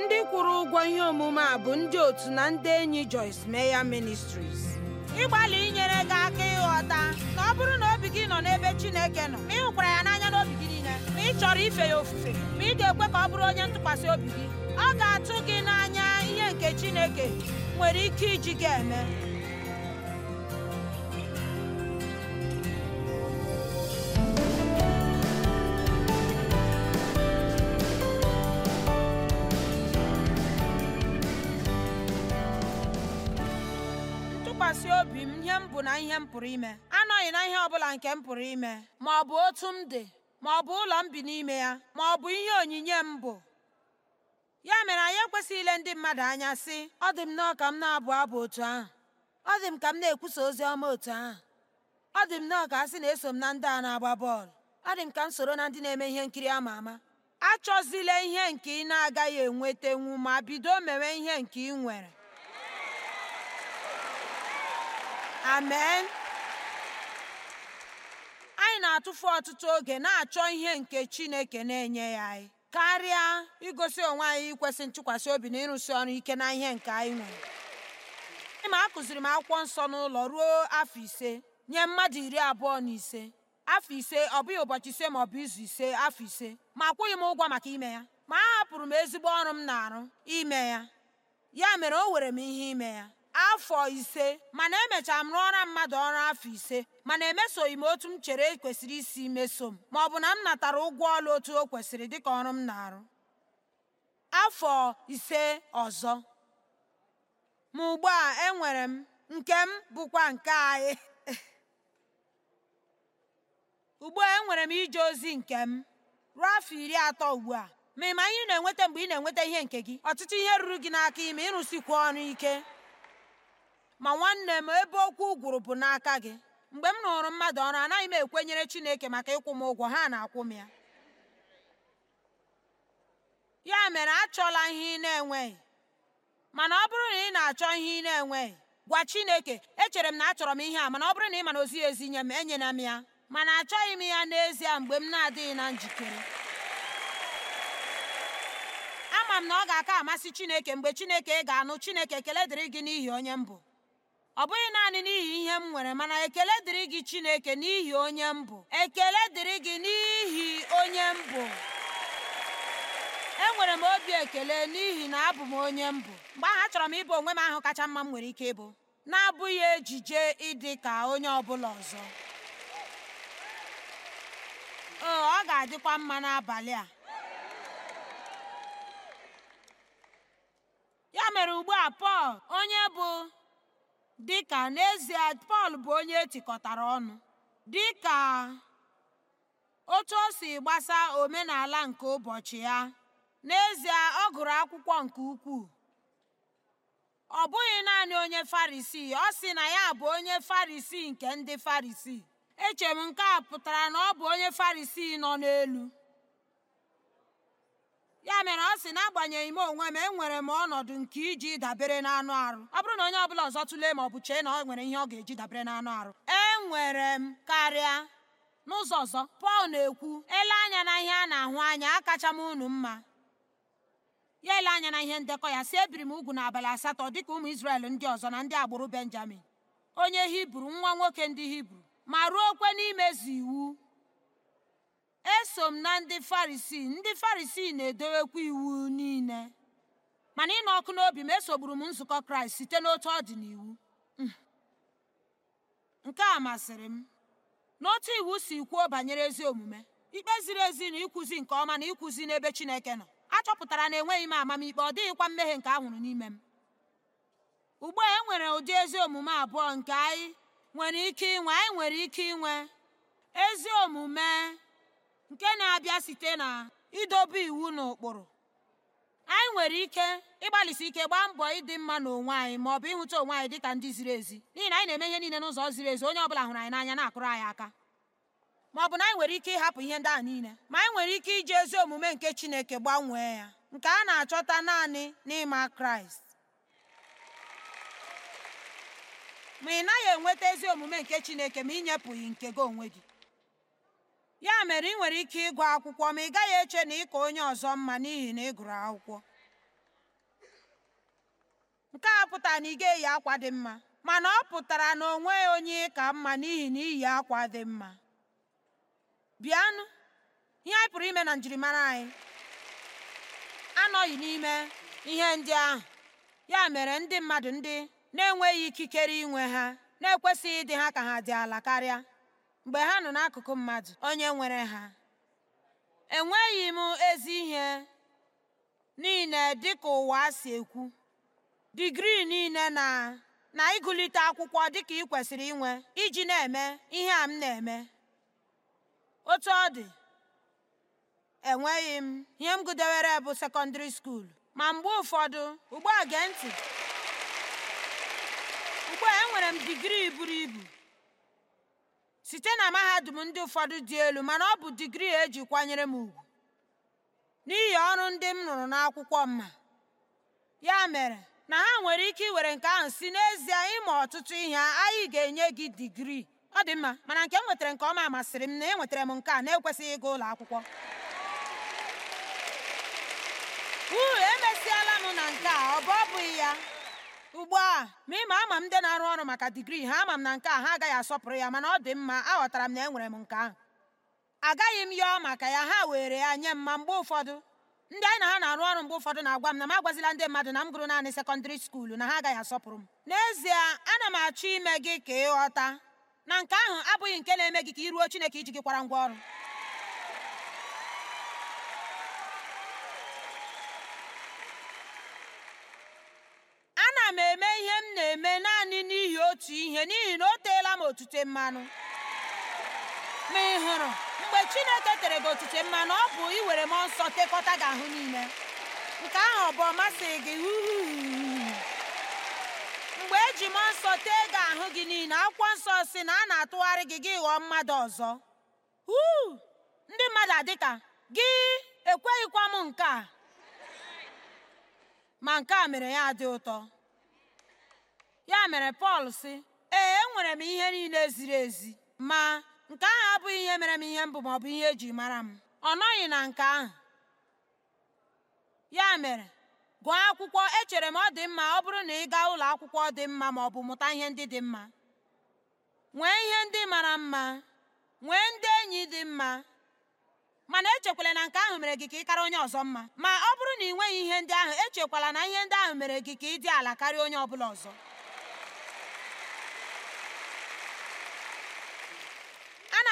ndị kwụrụ ụgwọ ihe omume a bụ ndị otu na ndị enyi Joyce Meyer Ministries ịgbalị inyere gị aka ịghọta na ọ bụrụ na obi gị nọ n'ebe Chineke nọ ma ị hụkwara ya n'anya n'obi gị niile ma ị chọrọ ife ya ofufe ma ị ga-ekwe ka ọ bụrụ onye ntụkwasị obi gị ọ ga-atụ gị n'anya ihe nke Chineke nwere ike iji gị eme na ihe m pụrụ ime anọghị na ihe ọbụla nke m pụrụ ime ma ọ bụ otu m dị ma ọ bụ ụlọ m bi n'ime ya ma ọ bụ ihe onyinye m bụ ya mere anyị ekwesịghị ile ndị mmadụ anya sị ọ dị m nọọ ka m na-abụ abụ otu ahụ ọ dị m ka m na-ekwusa ozi ọma otu ahụ ọ dị m nọọ ka a sị na eso m na ndị a na-agba bọọlụ ọ dị m ka m soro na ndị na-eme ihe nkiri ama ama achọzila ihe nke ị na-agaghị enwetenwu ma bido mewe ihe nke ị nwere amen anyị na-atụfu ọtụtụ oge na-achọ ihe nke chineke na-enye ya anyị karịa igosi onwe anyị ikwesị ntụkwasị obi na ịrụsi ọrụ ike na ihe nke anyị nwere ịma a kụziri m akwụkwọ nsọ n'ụlọ ruo afọ ise nye mmadụ iri abụọ na ise afọ ise ọ bụghị ụbọchị ise ma ọ bụ izu ise afọ ise ma akwụghị m ụgwọ maka ime ya ma a hapụrụ m ezigbo ọrụ m na-arụ ime ya ya mere o were m ihe ime ya afọ ise mana emechara m rụọra mmadụ ọrụ afọ ise mana emesoghị m otu m chere e kwesịrị isi meso m ma ọ bụ na m natara ụgwọ ọrụ otu o kwesịrị dịka ọrụ m na-arụ afọ ise ọzọ ma ugbu a enwere m nke m bụkwa nke anyị ugbu a enwere m ije ozi nke m ruo afọ iri atọ ugbu a ma ị ma ihe na-enweta mgbe ị na-enweta ihe nke gị ọtụtụ ihe ruru gị n'aka ime ịrụsikwu ọrụ ike ma nwanne m ebe okwu gwụrụ bụ n'aka gị mgbe m rụrụ mmadụ ọrụ anaghị m ekwenyere chineke maka ịkwụ m ụgwọ ha na-akwụ m ya ya mere achọla ihe ị na-enweghị mana ọ bụrụ na ị na-achọ ihe ị na-enweghị gwa chineke echere m na achọrọ m ihe a mana ọ bụrụ na ị mana ozighị ezi nye m enyela m ya mana achọghị m ya n'ezie mgbe m na-adịghị na njikere ama m na ọ ga-aka amasị chineke mgbe chineke ga-anụ chineke ekele dịrị gị n'ihi onye m bụ ọ bụghị naanị n'ihi ihe m nwere mana ekele dịrị gị Chineke n'ihi onye m ekele dịrị gị n'ihi onye m bụ enwere m obi ekele n'ihi na abụ m onye m bụ mgbe ahụ achọrọ m ịbụ onwe m ahụ kacha mma m nwere ike ịbụ na-abụghị ejije ịdị ka onye ọ bụla ọzọ ee oh, ọ ga-adịkwa mma n'abalị a ya mere ugbu a Pọl onye bụ dị ka n'ezie Pọl bụ onye etikọtara ọnụ dị ka otu o si gbasa omenala nke ụbọchị ya n'ezie ọ gụrụ akwụkwọ nke ukwuu ọ bụghị naanị onye Farisii ọ sị na ya bụ onye Farisii nke ndị Farisii echere m nke a pụtara na ọ bụ onye Farisii nọ n'elu ya mere ọ sị n'agbanyeghị m onwe m enwere m ọnọdụ nke iji dabere na anụ arụ ọ bụrụ na onye ọbụla ọzọ tụlee ma ọ bụ chee na ọ nwere ihe ọ ga-eji dabere n'anụ arụ enwere m karịa n'ụzọ ọzọ pọl na-ekwu ele anya na ihe a na-ahụ anya akacha m unu mma ya ele anya na ihe ndekọ ya si ebiri m ugwu n'abalị asatọ dịka ụmụ Izrel ndị ọzọ na ndị agbụrụ Benjamin onye Hibru nwa nwoke ndị Hibru ma kwe n'imezu iwu eso m na ndị farisii ndị farisii na-edowekwa iwu niile mana ịnụ ọkụ n'obi m esogburu m nzukọ kraịst site n'otu ọ dị n'iwu mm. nke a masịrị m n'otu iwu si kwuo banyere ezi omume ikpe ziri ezi na ịkụzi nke ọma na ịkụzi n'ebe chineke nọ achọpụtara na enweghị m amamikpe ọ dịghịkwa mmehie nke anwụrụ n'ime m ugbu a enwere ụdị ezi omume abụọ nke anyị nwere ike inwe anyị nwere ike inwe ezi omume nke na-abịa site na idobe iwu na ụkpụrụ anyị nwere ike ịgbalịsi ike gbaa mbọ ịdị mma n'onwe anyị ma ọ bụ ịhụta onwe anyị dịka ndị ziri ezi n'ihi na anyị na-eme ihe niile n'ụzọ ziri ezi onye ọbụla hụrụ anyị n'anya na-akụrụ anyị aka ma ọ bụ na anyị nwere ike ịhapụ ihe ndị a niile ma anyị nwere ike iji ezi omume nke Chineke gbanwee ya nke a na-achọta naanị n'ịma Kraịst ma ị naghị enweta ezi omume nke Chineke ma inyepụghị nke gị onwe gị ya mere ị nwere ike ịgụ akwụkwọ ma ị gaghị eche na ịka onye ọzọ mma n'ihi na ị gụrụ akwụkwọ nke a pụtara na ị ga-eyi akwa dị mma mana ọ pụtara na onwe onye ịka mma n'ihi na iyi akwa dị mma bịanụ ihe anyị pụrụ ime na njirimara anyị anọghị n'ime ihe ndị ahụ ya mere ndị mmadụ ndị na-enweghị ikikere inwe ha na-ekwesịghị ịdị ha ka ha dị ala karịa mgbe ha nọ n'akụkụ mmadụ onye nwere ha enweghị m ezi ihe niile dịka ụwa si ekwu digrii niile na na ịgụlite akwụkwọ dịka ị kwesịrị inwe iji na-eme ihe a m na-eme otu ọ dị enweghị m ihe m gụdewere bụ sekọndịrị skuul ma mgbe ụfọdụ ugbu a gee ntị ugbu enwere m digrii buru ibu site na mahadum ndị ụfọdụ dị elu mana ọ bụ digrii e ji kwanyere m ugwu n'ihi ọrụ ndị m rụrụ n'akwụkwọ mma ya mere na ha nwere ike iwere nke ahụ si n'ezie ịma ọtụtụ ihe anyị ga-enye gị digrii ọ dị mma mana nke m nwetara nke ọma masịrị m na e nwetara m nke a na-ekwesịghị ịga ụlọ akwụkwọ uu emesịala m na nke a ọ bụ ọ bụghị ya ugbu a ma ịma ama m ndị na-arụ ọrụ maka digrii ha ama m na nke a ha agaghị asọpụrụ ya mana ọ dị mma aghọtara m na enwere m nke ahụ agaghị m yọọ maka ya ha were ya nye m ma mgbe ụfọdụ ndị anyị na ha na-arụ ọrụ mgbe ụfọdụ na-agwa m na m agwazila ndị mmadụ na m gụrụ naanị sekọndịrị skuulu na ha agaghị asọpụrụ m n'ezie ana m achọ ime gị ka ịghọta na nke ahụ abụghị nke na-eme gị ka iruo Chineke iji gị kwara ngwa ọrụ m na-eme naanị n'ihi otu ihe n'ihi na o teela m otute mmanụ ma ị hụrụ mgbe Chineke tere gị otute mmanụ ọ bụ iwere mmụọ nsọ tekọta gị ahụ niile nke ahụ ọ bụ ọmasị gị mgbe eji mmụọ nsọ tee gị ahụ gị niile akwụkwọ nsọ si na a na-atụgharị gị gị ghọọ mmadụ ọzọ ndị mmadụ adịka gị ekweghịkwa m nke a ma nke a mere ya dị ụtọ ya mere pọl sị ee enwere m ihe niile ziri ezi ma nke ahụ abụghị ihe mere m ihe mbụ ma ọ bụ ihe eji mara m ọ nọghị na nke ahụ ya mere gụọ akwụkwọ echere m ọ dị mma ọ bụrụ na ị gaa ụlọ akwụkwọ dị mma ma ọ bụ mụta ihe ndị dị mma nwee ihe ndị mara mma nwee ndị enyi dị mma mana echekwala na nke ahụ mere gị ka ị karịa onye ọzọ mma ma ọ bụrụ na ị nweghị ihe ndị ahụ echekwala na ihe ndị ahụ mere gị ka ị dị ala karịa onye ọ bụla ọzọ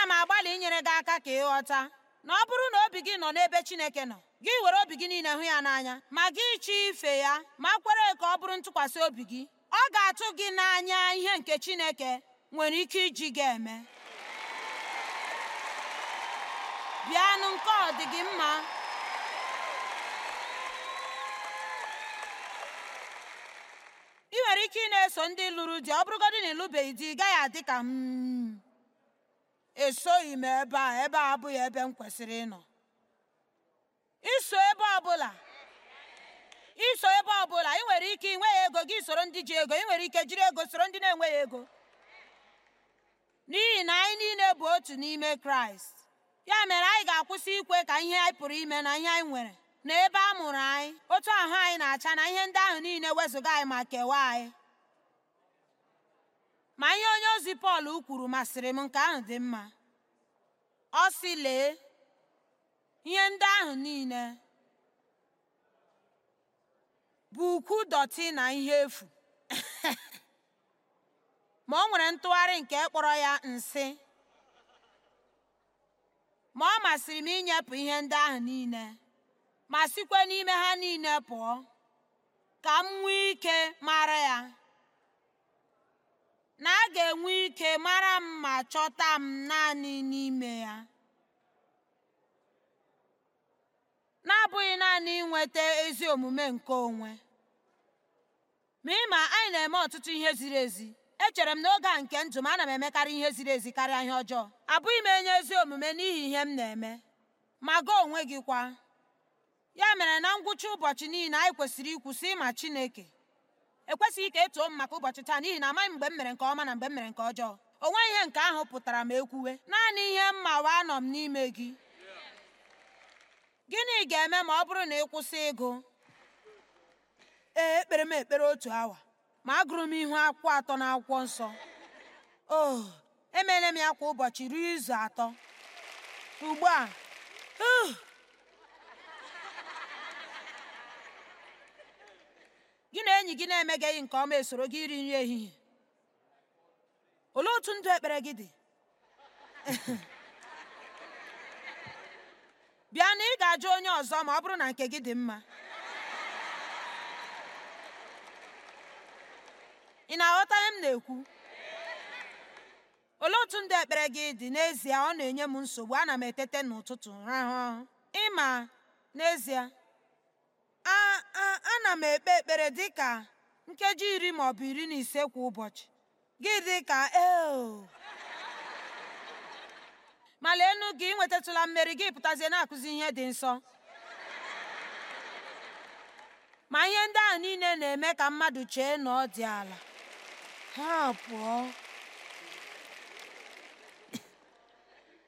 ana m agbalị inyere gị aka ka ị ghọta na ọ bụrụ na obi gị nọ n'ebe Chineke nọ gị were obi gị niile hụ ya n'anya ma gị chọọ ife ya ma kwere ka ọ bụrụ ntụkwasị obi gị ọ ga-atụ gị n'anya ihe nke Chineke nwere ike iji gị eme bịanụ nke ọ dị gị mma ị nwere ike ị na-eso ndị lụrụ di ọ bụrụgodị na ịlụbeghị di ị gaghị adị ka m hmm. esoghị m ebe a ebe a abụghị ebe m kwesịrị ịnọ iso ebe ọbụla iso ebe ọbụla ị nwere ike inwe ego gị soro ndị ji ego ị nwere ike jiri ego soro ndị na-enweghị ego n'ihi na anyị niile bụ otu n'ime kraịst ya mere anyị ga-akwụsị ikwe ka ihe anyị pụrụ ime na ihe anyị nwere na ebe a mụrụ anyị otu ahụ anyị na-acha na ihe ndị ahụ niile wezụga anyị ma kewaa anyị ma ihe onye ozi Pọl kwuru masịrị m nke ahụ dị mma ọ sị lee ihe ndị ahụ niile bụ ukwu dọtị na ihe efu ma o nwere ntụgharị nke kpọrọ ya nsị ma ọ masịrị m inyepụ ihe ndị ahụ niile ma sikwa n'ime ha niile pụọ ka m nwee ike mara ya na a ga enwe ike mara m ma chọta m naanị n'ime ya. na-abụghị naanị inweta ezi omume nke onwe ma ịma anyị na-eme ọtụtụ ihe ziri ezi echere m n'oge a nke ndụ m ana m emekarị ihe ziri ezi karịa ihe ọjọọ abụghị m enye ezi omume n'ihi ihe m na-eme ma gaa onwe gị kwa ya mere na ngwụcha ụbọchị niile anyị kwesịrị ikwusị ịma Chineke ekwesịghị ka etuo m maka ụbọchị taa n'ihi na amaghị mgbe m mere nke ọma na mgbe m mere nke ọjọọ onwe ihe nke ahụ pụtara m ekwuwe naanị ihe wee anọ m n'ime gị gịnị ga-eme ma ọ bụrụ na ị kwụsị ịgụ ee ekpere m ekpere otu awa ma agụrụ m ihu akwụkwọ atọ na akwụkwọ nsọ o oh, emeela m ya kwa ụbọchị ruo izu atọ ugbu a uh, gị na enyi gị na gị nke ọma esoro gị iri nri ehihie olee otu ndụ ekpere gị dị bịa na ị ga-ajụ onye ọzọ ma ọ bụrụ na nke gị dị mma ị na-aghọta m na-ekwu olee otu ndụ ekpere gị dị n'ezie ọ na-enye m nsogbu ana m etete n'ụtụtụ ịma n'ezie ana m ekpe ekpere dị ka nkeji iri maọbụ iri na ise kwa ụbọchị gị ka eo ma lee gị nwetatụla mmeri gị pụtazie na-akụzi ihe dị nsọ ma ihe ndị ahụ niile na-eme ka mmadụ chee na ọ dị ala ha pụọ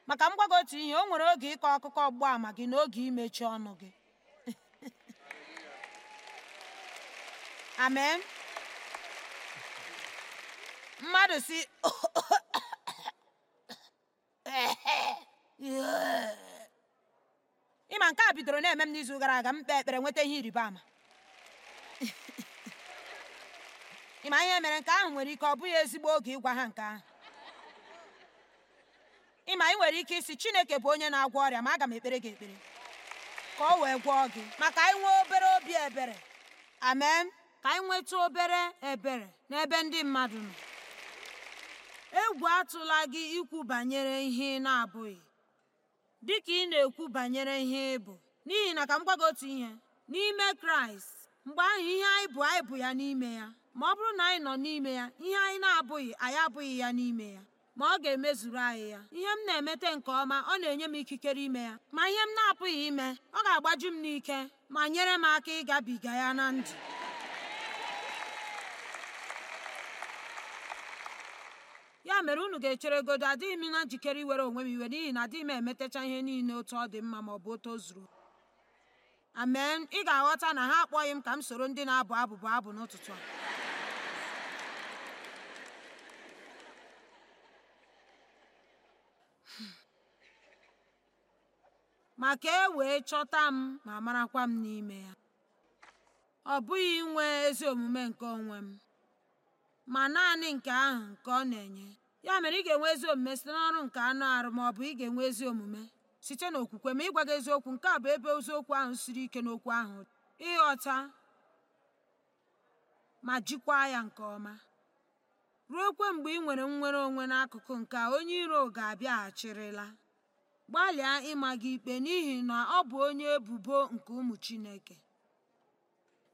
maka m gwago otu ihe o nwere oge ịkọ akụkọ ọgba ama gị na imechi ọnụ gị amen mmadụ si ịma nke a bidoro na-eme m n'izu gara aga m ekpere nweta ihe ịrịba ama ịma ihe mere nke ahụ nwere ike ọ bụghị ezigbo oge ịgwa ha nke ahụ ịma ị nwere ike isi Chineke bụ onye na-agwọ ọrịa ma aga m ekpere gị ekpere ka ọ wee gwọọ gị maka nwee obere obi ebere amen ka anyị nweta obere ebere n'ebe ndị mmadụ nọ egwu atụla gị ikwu banyere ihe ị na-abụghị dịka ị na-ekwu banyere ihe ị bụ n'ihi na ka m gwa otu ihe n'ime kraịst mgbe ahụ ihe anyị bụ anyị bụ ya n'ime ya ma ọ bụrụ na anyị nọ n'ime ya ihe anyị na-abụghị anyị abụghị ya n'ime ya ma ọ ga-emezuru anyị ya ihe m na-emete nke ọma ọ na-enye m ikikere ime ya ma ihe m na-apụghị ime ọ ga-agbaju m n'ike ma nyere m aka ịgabiga ya na ndụ ya mere unu ga echere godo adịghị m na njikere iwere onwe m iwe n'ihi na adịghị m emetacha ihe niile otu ọ dị mma ma ọ bụ otu o zuru amen ị ga-aghọta na ha akpọghị m ka m soro ndị na-abụ abụbụ abụ n'ụtụtụ a hmm. ma ka e wee chọta m ma marakwa m n'ime ya ọ bụghị inwe ezi omume nke onwe m ma naanị nke ahụ nke ọ na-enye ya mere ị ga-enwe ezi omume site n'ọrụ nke anụ arụ ma ọ bụ ị ga-enwe ezi omume site n'okwukwe ma ịgwa gị eziokwu nke a bụ ebe eziokwu ahụ siri ike n'okwu ahụ ịghọta ma jikwaa ya nke ọma ruo kwe mgbe ị nwere nnwere onwe n'akụkụ nke onye iro ga-abịaghachirịla gbalịa ịma gị ikpe n'ihi na ọ bụ onye ebubo nke ụmụ Chineke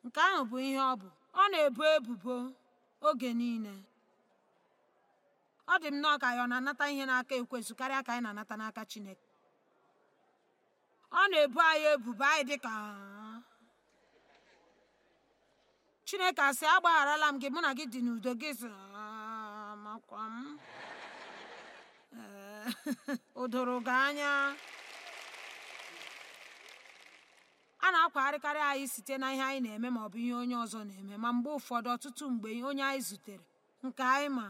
nke ahụ bụ ihe ọ bụ ọ na-ebo ebubo oge niile ọ dị m nnọọ ka anyị ọ na-anata ihe n'aka Ekwesu karịa ka anyị na-anata n'aka chineke ọ na-ebu anyị ebubo anyị dị ka chineke asị agbagharala m gị mụ na gị dị n'udo gị makwa m o gị anya a na-akwagharịkarị anyị site na ihe anyị na-eme ma ọ bụ ihe onye ọzọ na-eme ma mgbe ụfọdụ ọtụtụ mgbe onye anyị zutere nke anyị ma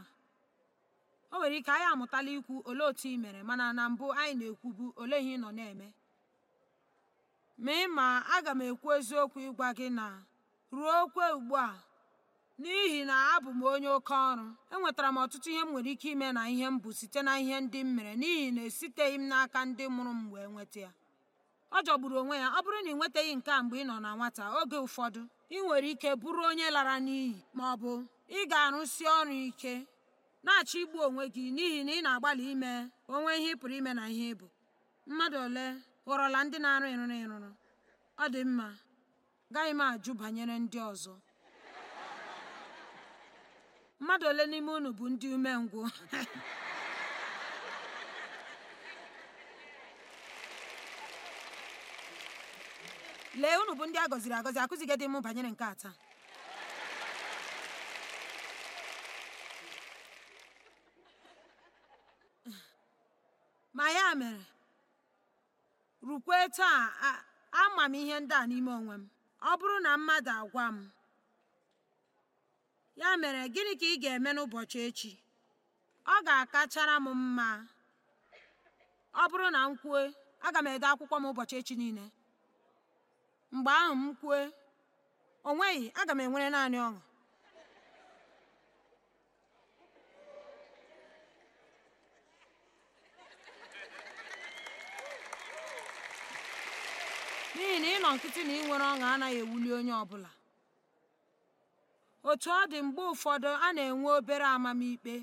o nwere ike anyị amụtala ikwu olee otu ị mere mana na mbụ anyị na-ekwubu ole ihe ị nọ na-eme ma ị ma aga m ekwu eziokwu ịgwa gị na ruo okwe ugbu a n'ihi na abụ m onye oke ọrụ enwetara m ọtụtụ ihe m nwere ike ime na ihe m bụ site na ihe ndị m mere n'ihi na esiteghị m n'aka ndị mụrụ m wee nweta ya ọ jọgburu onwe ya ọ bụrụ na ị nwetaghị nke a mgbe ị nọ na nwata oge ụfọdụ ị nwere ike bụrụ onye lara n'iyi ma ọ bụ ị ga-arụsi ọrụ ike na-achọ igbu onwe gị n'ihi na ị na-agbalị ime onwe ihe ị pụrụ ime na ihe ịbụ mmadụ ole ghọrọla ndị na-arụ ịrụrụ ịrụrụ ọ dị mma gaghị m ajụ banyere ndị ọzọ mmadụ ole n'ime unu bụ ndị umengwụ lee unu bụ ndị a gọziri agọzi akụzighị dị m banyere nke a taa ma ya mere rukwe taa ama m ihe ndị a n'ime onwe m ọ bụrụ na mmadụ agwa m ya mere gịnị ka ị ga-eme n'ụbọchị echi ọ ga-akachara m mma ọ bụrụ na m kwue aga m ede akwụkwọ m ụbọchị echi niile mgbe ahụ m kwue o nweghị aga m enwere naanị ọṅụ n'ihi na ị nọ nkịtị na ị nwere ọṅụ anaghị ewuli onye ọ bụla, otu ọ dị mgbe ụfọdụ a na-enwe obere amamikpe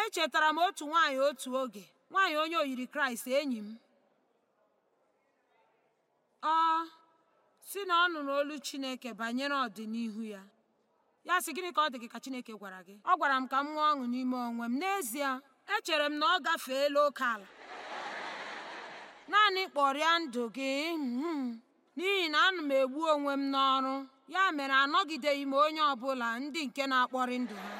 echetara m otu nwaanyị otu oge nwaanyị onye oyiri kraịst enyi m ọ si na ọ nụrụ olu Chineke banyere ọdịnihu ya ya sị gịnị ka ọ dị gị ka Chineke gwara gị ọ gwara m ka m nwee ọṅụ n'ime onwe m n'ezie echere m na ọ gafeela oke ala naanị kpọrịa ndụ gị hmm, n'ihi na anụ m egbu onwe m n'ọrụ ya mere anọgideghị m onye ọbụla ndị nke na-akpọrị ndụ ha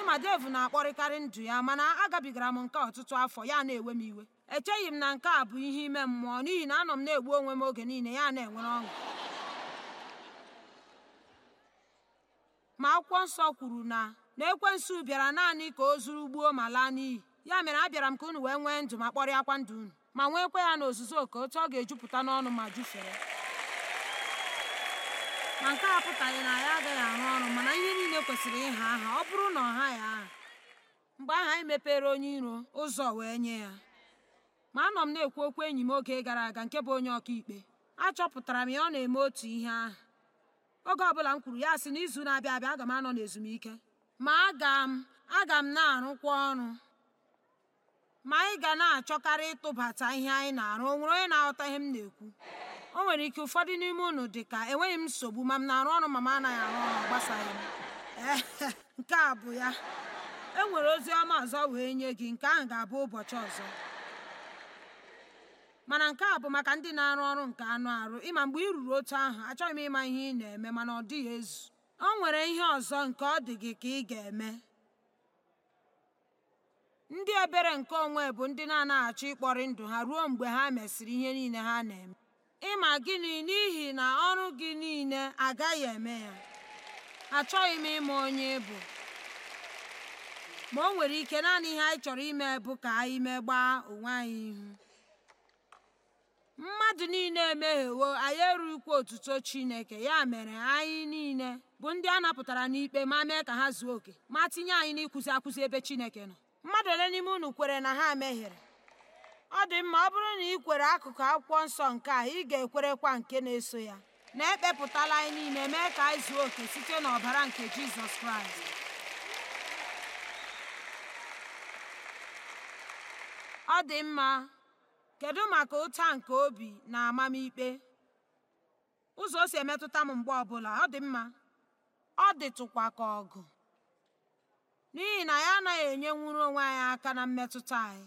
ịma dev na-akpọrịkarị ndụ ya mana agabigara m nke ọtụtụ afọ ya na-ewe m iwe echeghị m na nke a bụ ihe ime mmụọ n'ihi na anọ m na-egbu onwe m oge niile ya na-enwere ọṅụ ma akwụkwọ nsọ kwuru na na ekwensu bịara naanị ka o zuru gbuo ma laa n'iyi ya mere abịara m ka unu wee nwee ndụ ma kpọrịakwa ndụ unu ma nweekwa ya n'ozuzu oke otu ọ ga-ejupụta n'ọnụ ma jufere ma nke a apụtaghị na ya agaghị arụ ọrụ mana ihe niile kwesịrị ịha aha ọ bụrụ na ọ ya aha mgbe aha anyị mepere onye iro ụzọ wee nye ya ma anọ m na-ekwu okwu enyi m oge gara aga nke bụ onye ọkaikpe achọpụtara m ya ọ na-eme otu ihe aha. oge ọbụla m kwuru ya sị n'izu na-abịa abịa aga m anọ n'ezumike ma aga m aga m na-arụkwa ọrụ ma anyị ga na-achọkarị ịtụbata ihe anyị na-arụ o nwere onye na-aghọta ihe m na-ekwu o nwere ike ụfọdụ n'ime unu dị ka enweghị m nsogbu ma m na-arụ ọrụ ma m anaghị arụ ọrụ gbasaghị m nke a bụ ya e nwere ozi ọma ọzọ wee nye gị nke ahụ ga-abụ ụbọchị ọzọ mana nke a bụ maka ndị na-arụ ọrụ nke anụ arụ ịma mgbe ị ruru otu ahụ achọghị m ịma ihe ị na-eme mana ọ dịghị ezu o nwere ihe ọzọ nke ọ dị gị ka ị ga-eme ndị ebere nke onwe bụ ndị na-anaghị achọ ịkpọrị ndụ ha ruo mgbe ha mesịrị ihe niile ha na-eme ịma gịnị n'ihi na ọrụ gị niile agaghị eme ya achọghị m ịma onye ịbụ ma o nwere ike naanị ihe anyị chọrọ ime bụ ka anyị megbaa onwe anyị ihu mmadụ niile emeghewo anyị erughịkwa otuto Chineke ya mere anyị niile bụ ndị a napụtara n'ikpe ma mee ka ha zuo oke ma tinye anyị nịkụzi akwụzi ebe Chineke nọ mmadụ ole n'ime unu kwere na ha meghere? ọ dị mma ọ bụrụ na ị kwere akụkụ akwụkwọ nsọ nke a ị ga-ekwerekwa nke na-eso ya na ekpepụtala anyị niile mee ka anyị zuo oke site n'ọbara nke jizọs kraịst ọ dị mma kedu maka ụta nke obi na amamikpe ụzọ o si emetụta m mgbe ọbụla ọ dị mma ọ dịtụkwa ka ọgụ n'ihi na ya anaghị enye nwuru onwe anyị aka na mmetụta anyị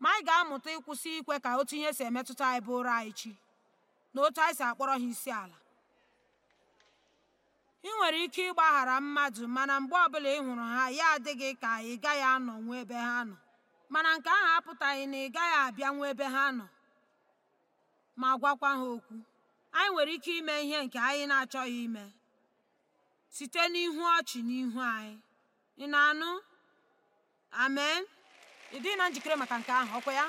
ma anyị ga-amụta ịkwụsị ikwe ka otu ihe si emetụta anyị bụ ụra anyị chi na otu anyị si akpọrọ ha isi ala ị nwere ike ịgbaghara mmadụ mana mgbe ọbụla ị hụrụ ha ya adịghị ka ị gaghị nwe ebe ha nọ mana nke ahụ apụtaghị na ị gaghị abịa abịanwu ebe ha nọ ma gwakwa ha okwu anyị nwere ike ime ihe nke anyị na-achọghị ime site n'ihu ọchị n'ihu anyị ị na-anụ amen ị na njikere maka nke ahụ ọkwa ya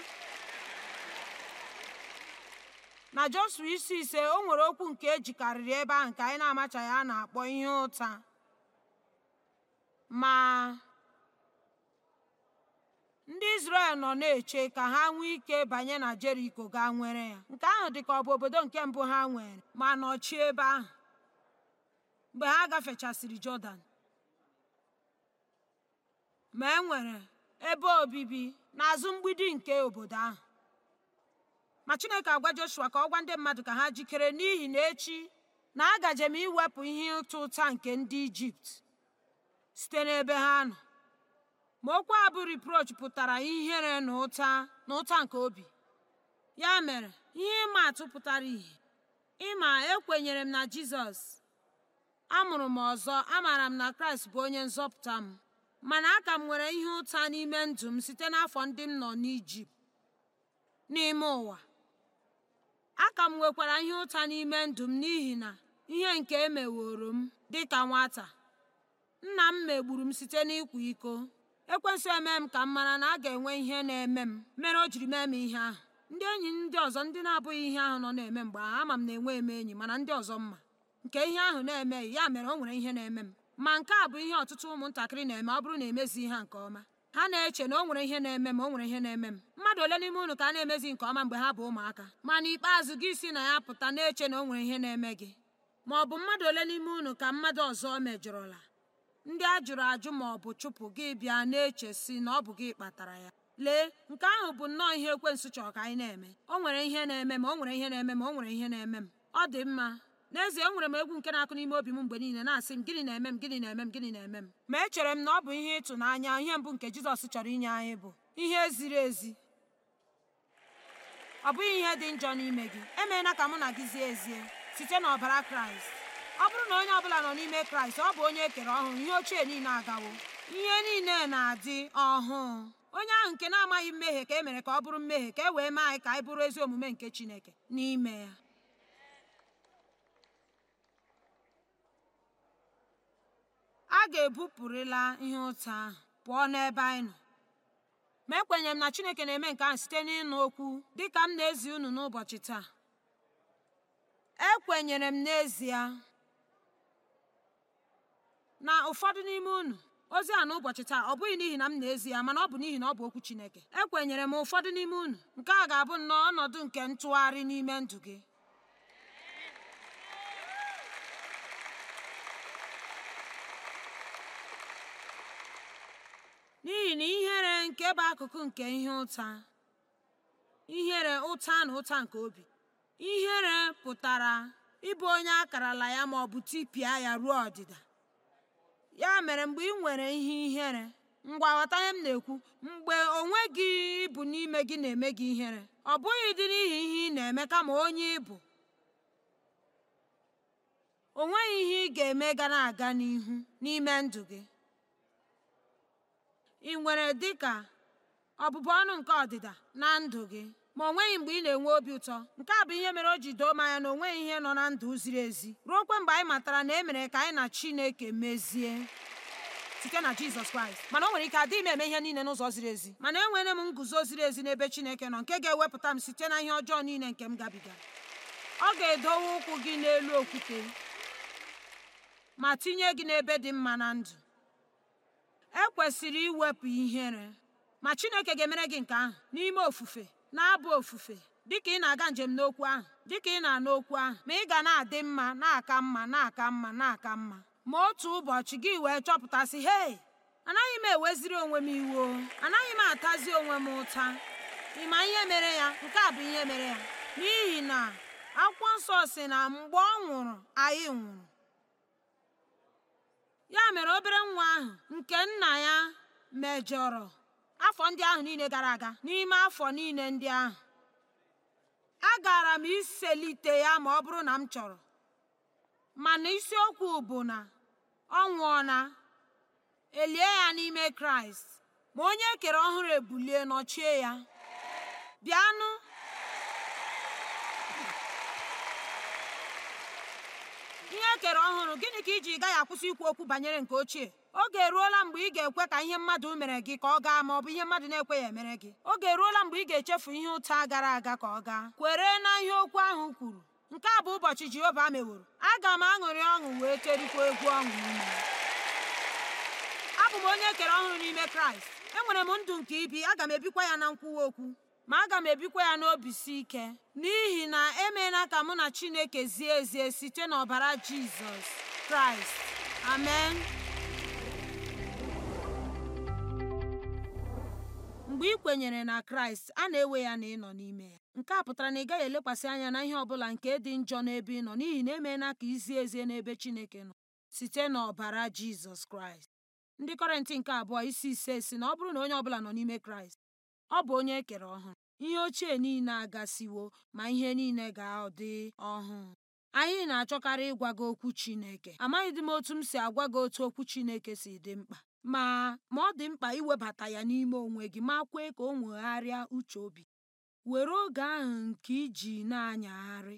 na Jọshụa isi ise o nwere okwu nke ejikarịrị ebe ahụ nke anyị na-amachaghị a na-akpọ ihe ụta ma ndị isrel nọ na-eche ka ha nwee ike banye na Jeriko ga nwere ya nke ahụ dị ka ọ bụ obodo nke mbụ ha nwere ma nọchie ebe ahụ mgbe ha gafechasịrị Jọdan ma e nwere ebe obibi n'azụ mgbidi nke obodo ahụ ma chineke agwa joshua ka ọ gwa ndị mmadụ ka ha jikere n'ihi na echi na agaje m iwepụ ihe ụta ụta nke ndị ijipt site n'ebe ha nọ ma okwu abụ bụ pụtara ihere na ụta na ụta nke obi ya mere ihe ịma atụ pụtara ihe ịma ekwenyere m na jizọs amụrụ m ọzọ amaara m na kraịst bụ onye nzọpụta m mana aka m nwere ihe ụta n'ime ndụ m site n'afọ ndị m nọ n'ijipt n'ime ụwa aka m nwekwara ihe ụta n'ime ndụ m n'ihi na ihe nke emeworo m dị ka nwata nna m megburu m site n'ịkwa iko ekwensu eme m ka m mara na a ga-enwe ihe na-eme m mere o jiri mee m ihe ahụ ndị enyi ndị ọzọ ndị na-abụghị ihe ahụ nọ na-eme mgbe ahụ ama m na enwe m enyi mana ndị ọzọ mma nke ihe ahụ na-emeghị ya mere o nwere ihe na-eme m ma nke a bụ ihe ọtụtụ ụmụntakịrị na-eme ọ bụrụ na emezighị ha nke ọma ha na-eche na o nwere ihe na-eme m o nwere ihe na-eme m mmadụ ole n'ime unu ka a na-emezi nke ọma mgbe ha bụ ụmụaka ma n'ikpeazụ gị si na ya pụta na-eche na o nwere ihe na-eme gị ma ọ bụ mmadụ ole n'ime unu ka mmadụ ọzọ mejọrọla ndị a jụrụ ajụ ma ọ bụ chụpụ gị bịa na-eche si na ọ bụ gị kpatara ya lee nke ahụ bụ nnọọ ihe ekwensu chọrọ ka anyị na-eme o nwere ihe na-eme m o nwere ihe na-eme m o nwere ihe na-eme m ọ dị mma n'ezie enwere m egwu nke na-akụ n'ime obi m mgbe niile na-asị m gịnị na-eme m gịnị na-eme m gịnị na-eme m ma echere m na ọ bụ ihe ịtụnanya ihe mbụ nke jizọs chọrọ inye anyị bụ ihe ziri ezi ọ bụghị ihe dị njọ n'ime gị emeela ka mụ na gị zie ezie site n'ọbara kraịst ọ bụrụ na onye ọ bụla nọ n'ime kraịst ọ bụ onye e kere ọhụrụ ihe ochie niile agawo ihe niile na-adị ọhụụ onye ahụ nke na-amaghị mmehie ka e mere ka ọ bụrụ mmehie ka e wee mee anyị ka anyị bụrụ ezi omume nke chineke n'ime ya a ga-ebupụrịla ihe ụtọ ahụ pụọ n'ebe anyị nọ ma ekwenyere m na chineke na-eme nke ahụ site n'ịnụ okwu dịka m na-ezi unu n'ụbọchị taa ekwenyere m n'ezie na ụfọdụ n'ime unu ozi a n'ụbọchị taa ọ bụghị n'ihi na m na-ezi ya mana ọ bụ n'ihi na ọ bụ okwu chineke ekwenyere m ụfọdụ n'ime unu nke a ga-abụ nnọọ ọnọdụ nke ntụgharị n'ime ndụ gị n'ihi na ihere nke bụ akụkụ nke ihe ụta ihere ụta na ụta nke obi ihere pụtara ịbụ onye akarala ya ma ọ bụ tipịa ya ruo ọdịda ya mere mgbe ị nwere ihe ihere ngwa ghọta ihe m na-ekwu mgbe onwe gị n'ime gị na-eme gị ihere ọ bụghị dị n'ihi ihe ị na-eme kama onye ịbụ o nweghị ihe ị ga-eme ga na-aga n'ihu n'ime ndụ gị ị nwere dịka ọbụbụ ọnụ nke ọdịda na ndụ gị ma o nweghị mgbe ị na-enwe obi ụtọ nke a bụ ihe mere o ji doo m anya na o ihe nọ na ndụ ziri ezi ruo ruokwe mgbe anyị matara na e mere ka anyị na Chineke mezie site na Jizọs Kraịst mana o nwere ike adịghị m eme ihe niile n'ụzọ ziri ezi mana enwere m nguzo ziri ezi n'ebe Chineke nọ nke ga-ewepụta m site na ihe ọjọọ niile nke m gabigara. ọ ga-edowe ụkwụ gị n'elu okwute ma tinye gị n'ebe dị mma na ndụ ekwesịrị iwepụ ihere ma chineke ga-emere gị nke ahụ n'ime ofufe na-abụ ofufe dịka ị na-aga njem n'okwu ahụ dịka ị na-ana okwu ahụ ma ị ga na-adị mma na-aka mma na-aka mma na-aka mma ma otu ụbọchị gị wee chọpụtasị hei anaghị m eweziri onwe m iwu anaghị m atazi onwe m ụta ịma ihe mere ya nke a bụ ihe mere ya n'ihi na akwụkwọ nsọ si na mgbe ọ nwụrụ anyị nwụrụ ya mere obere nwa ahụ nke nna ya mejọrọ afọ ndị ahụ niile gara aga n'ime afọ niile ndị ahụ agara m iselite ya ma ọ bụrụ na m chọrọ mana isiokwu bụ na ọ na elie ya n'ime kraịst ma onye e kere ọhụrụ ebulie nọchie ya bịanụ ihe e kere ọhụrụ gịnị ka iji gaghị akwụsị ikwu okwu banyere nke ochie oge eruola mgbe ị ga-ekwe ka ihe mmadụ mere gị ka ọ gaa ma ọ bụ ihe mmadụ na-ekweghị emere gị oge eruola mgbe ị ga-echefu ihe ụta gara aga ka ọ gaa kwere na ihe okwu ahụ kwuru nke a bụ ụbọchị jehova meworo aga m aṅụrị ọṅụ wee kerikwa egwu ọṅụ abụ m onye e kere ọhụrụ n'ime kraịst enwere m ndụ nke ibi aga m ebikwa ya na nkwuwa okwu ma aga m ebikwa ya n'obi si ike n'ihi na emeela ka mụ na Chineke zie ezie site n'ọbara Jizọs Kraịst amen mgbe ị kwenyere na Kraịst a na-ewe ya na ịnọ n'ime ya nke a pụtara na ị gaghị elekwasị anya na ihe ọbụla nke dị njọ n'ebe ị nọ n'ihi na emeela ka izie ezie n'ebe Chineke nọ site n'ọbara Jizọs Kraịst ndị Kọrịntị nke abụọ isi ise si na ọ bụrụ na onye ọbụla nọ n'ime Kraịst Ọ bụ onye e kere ọhụrụ. Ihe ochie niile agasiwo, ma ihe niile ga-adị ọhụụ. Anyị na-achọkarị ịgwa gị okwu Chineke. Amaghịdị m otu m si agwa gị otu okwu Chineke si dị mkpa, ma ma ọ dị mkpa iwebata ya n'ime onwe gị ma kwee ka o nwegharịa uche obi Were oge ahụ nke iji na-anyagharị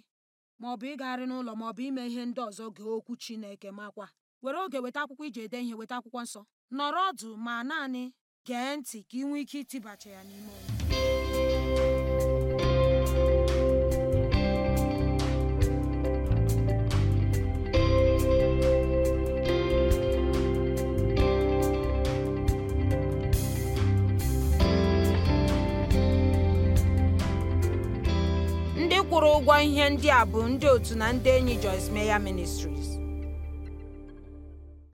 maọbụ ịgagharị n'ụlọ maọbụ ime ihe ndị ọzọ gị okwu Chineke makwa. Were oge weta akwụkwọ iji ede ihe, weta akwụkwọ nsọ. Nọrọ ọdụ ma naanị gee ntị ka ị nwee ike itibacha ya n'ime ndị kwụrụ ụgwọ ihe ndị a bụ ndị otu na ndị enyi Joyce meya ministry.